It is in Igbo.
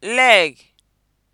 leg